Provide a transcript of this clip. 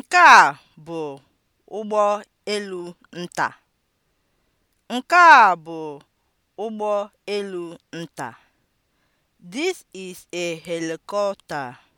Nke a bụ ụgbọ elu nta. Nke a bụ ụgbọ elu nta. This is a helicopter.